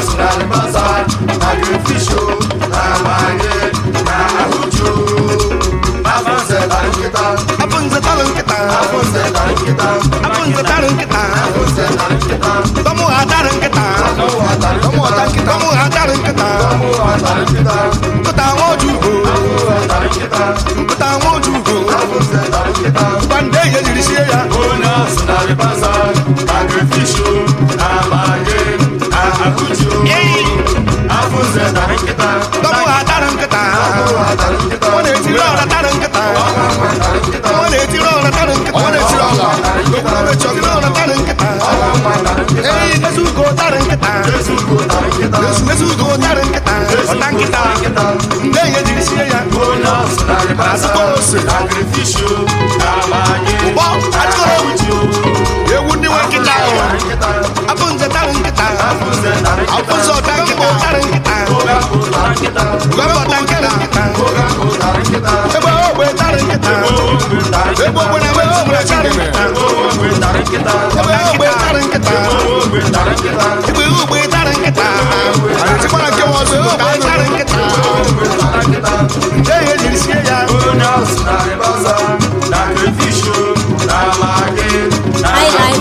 cultural bazaar na gree na manye na ahụju afọ nze tara nkịta afọ nze tara nkịta afọ nze ha ewu ndị nwe nkịta ahụ abụ nze tarị nkịta abụ nze ọta nkịta tarị nkịta gọbọta nkịta ebe ogbe tarị nkịta ebe ogbe na ebe ogbe tarị nkịta ebe ogbe tarị nkịta ebe ogbe tarị nkịta arịtikwara nke m ọzọ ebe ogbe tarị nkịta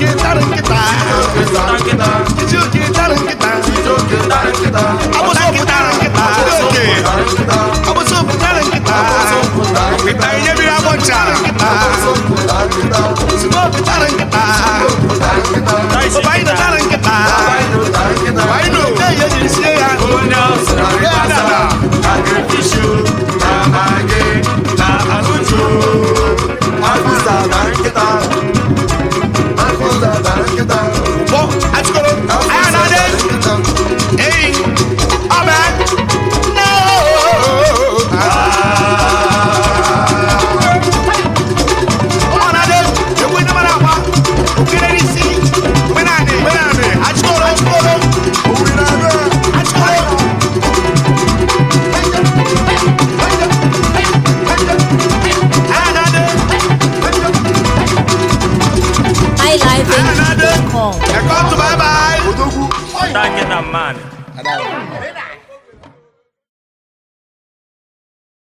nkịta nkịta nkịta Ekọtụ, bye bye. Odogwu. Thank you, man.